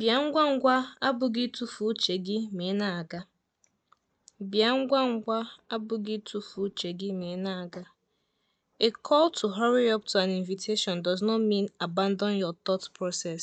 Bịa ngwa ngwa abụghị ịtụfu uche gị ma ị na-aga. Bịa ngwa ngwa abụghị ịtụfu uche gị ma ị na-aga. A call to hurry up to an invitation does not mean abandon your thought process.